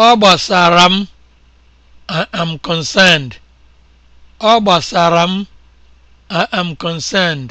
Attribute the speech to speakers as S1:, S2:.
S1: ọ gbasara m I am concerned am concerned